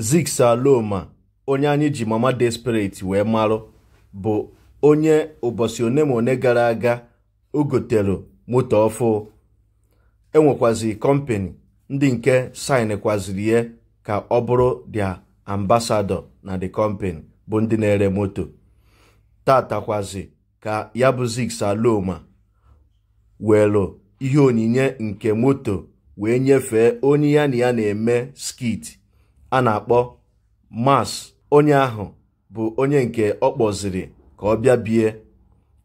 Ziks Aloma onye anyị ji Mama Desperate wee marụ bụ onye ụbọchị one ma one gara aga o gotere moto ọfụ enwekwazi kọmpani ndị nke saịnkwaziri ya ka ọ bụrụ dia ambasadọ na the company bụ ndị na-ere moto tatakwazi ka ya bụ Ziks Aloma weere ihe onyinye nke moto wee nyefee onye ya na ya na-eme skit a na-akpọ mas onye ahụ bụ onye nke ọ kpọziri ka ọ bịa bie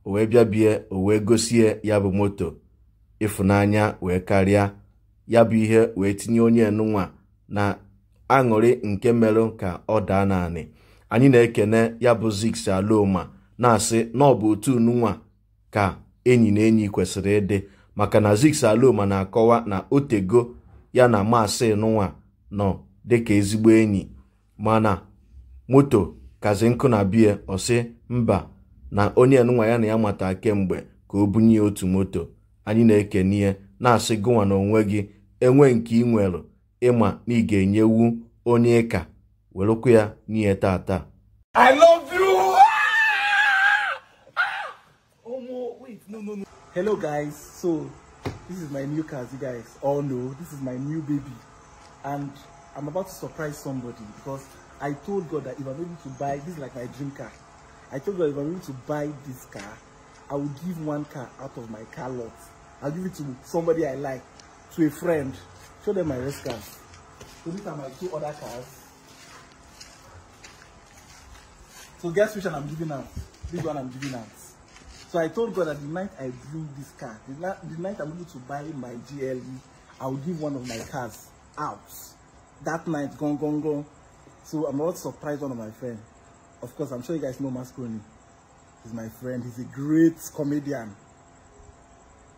o wee bịa bie o wee gosie ya bụ moto ịfụnanya wee karịa ya bụ ihe wee tinye onye nụnwa na aṅụrị nke merụ ka ọ daa naanị anyị na-ekene ya bụ Ziks Aloma na-asị na ọ bụ otu nụnwa ka enyi na enyi kwesịrị ịdị maka na Ziks Aloma na-akọwa na otego ya na maasị nụnwa nọ dịka ezigbo enyi mana moto kazi nkụ na bie ọsị mba na onye nwa ya na ya mata kemgbe ka o bunye otu moto anyị na ekenye n'ihe na-asị gụwa na onwe gị enwe nke ị nwere ịma na ị ga-enyewu onye ịka welụkwa ya n'ihe tata I love hello guys so this is my new car you guys this is my new baby and I'm about to surprise somebody because I told God that if I'm able to buy, this is like my dream car. I told God if I'm able to buy this car, I will give one car out of my car lot. I'll give it to somebody I like, to a friend. Show them my rest cars. So these are my two other cars. So guess which one I'm giving out? This one I'm giving out. So I told God that the night I bring this car, the, the night I'm able to buy my GLE, I will give one of my cars out that night, gone, gone, gone. So I'm not surprised one of my friends. Of course, I'm sure you guys know Mascroni. He's my friend. He's a great comedian.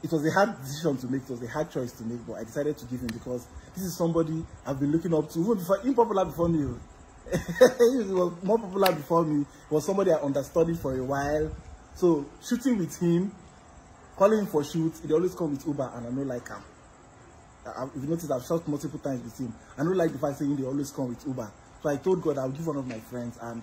It was a hard decision to make. It was a hard choice to make, but I decided to give him because this is somebody I've been looking up to, even before, popular before me. he was more popular before me. He was somebody I understudied for a while. So shooting with him, calling him for shoots, he always come with Uber, and I know like him. if you notice, I've shot multiple times with him. I don't like the fact saying they always come with Uber. So I told God I'll give one of my friends, and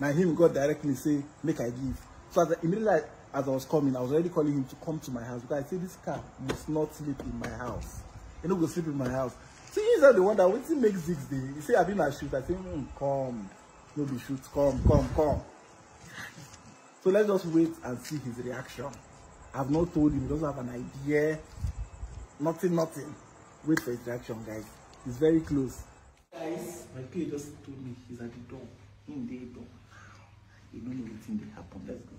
now him God directly say make I give. So as I, immediately as I was coming, I was already calling him to come to my house because I say this car must not sleep in my house. You know, go sleep in my house. So he's the one that waiting makes six day. He say I've been a shoot. I say mm, come, no be shoot, come, come, come. So let's just wait and see his reaction. I've not told him. He doesn't have an idea. Nothing, nothing wait for interaction guys it's very close guys my peer just told me he's at the door in the door he don't know wetin dey happen let's go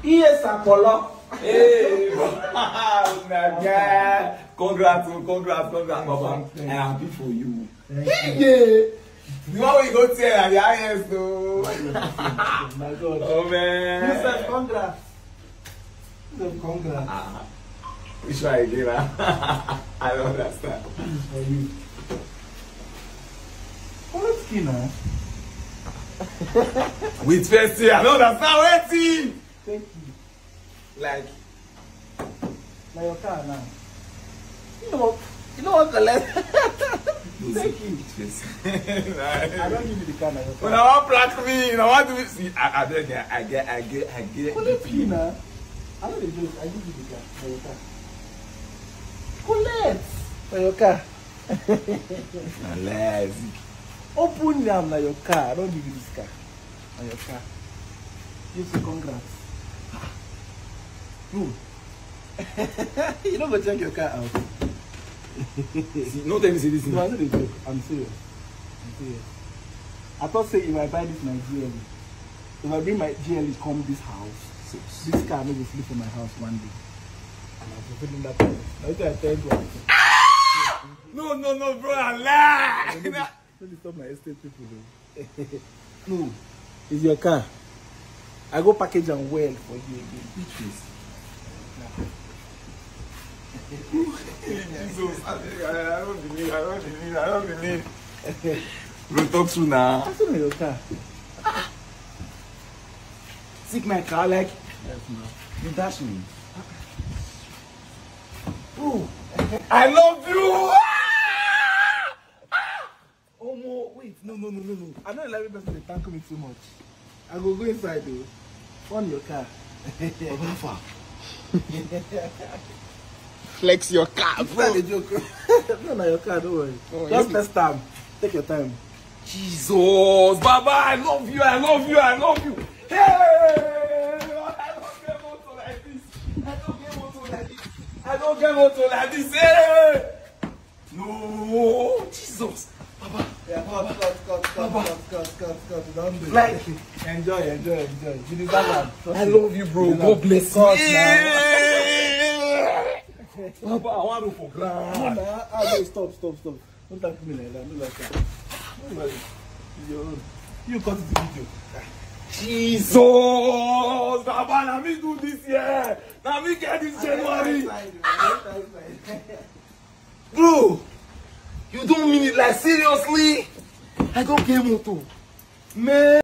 Yes, Apollo. Hey, my oh, Congrats, congrats, congrats, Baba. I am happy for you. Hey, yeah. The one we go tell at the highest, though. Oh, man. You said congrats. No, congrats. Ah, which one I gave her? I don't understand. This is you. What skin now? With fancy, I don't understand waiting. Thank you. Like. Now your car now. You know, you know what the left. Thank you. I don't give you the car now. When I want black me, you know what do see? I, get, I get, I get, I get. What is it now? I know they joke. I give you the car for your car. Collect for your car. na Open am na your car. I don give you this car. Na your car. You say congrats. No. Hmm. you don't go check your car out. see, no tell me say this No, I know they joke. I'm serious. I'm serious. I thought say if I buy this my GLE, if I bring my GLE come this house, So this car no go flee from my house one day. And I'm fulfilling that promise. Now you I tell you. No, no, no, bro, I lie. Let me stop my estate people no, it's your car. I go package and well for you again. Which is? Jesus, I, I don't believe, I don't believe, I don't believe. Bro, talk soon now. What's still your car. Stick my car like yes, You dash me. Ooh. I love you! oh ah! no, ah! wait, no, no, no, no, no. I know every person they thank me too much. I will go inside though. On your car. far? Flex your car, bro. It's not a joke. no, no, your car, don't worry. Oh, Just next time. Take your time. Jesus, Baba, I love you, I love you, I love you. I don't get motor like this. Hey! No, Jesus. Papa. yeah, Papa, cut, cut, cut, Papa. cut, cut, cut, cut. Don't do it. Like, enjoy, enjoy, enjoy. You need that one. I love you, bro. God bless you. Papa, I want to for ground. No, nah, ah, no, stop, stop, stop. Don't talk to me like that. Don't like that. You cut the video. Jesus! Baba, let me do this year. Let me get this January. Bro, you don't mean it like seriously? I don't care motor. Man.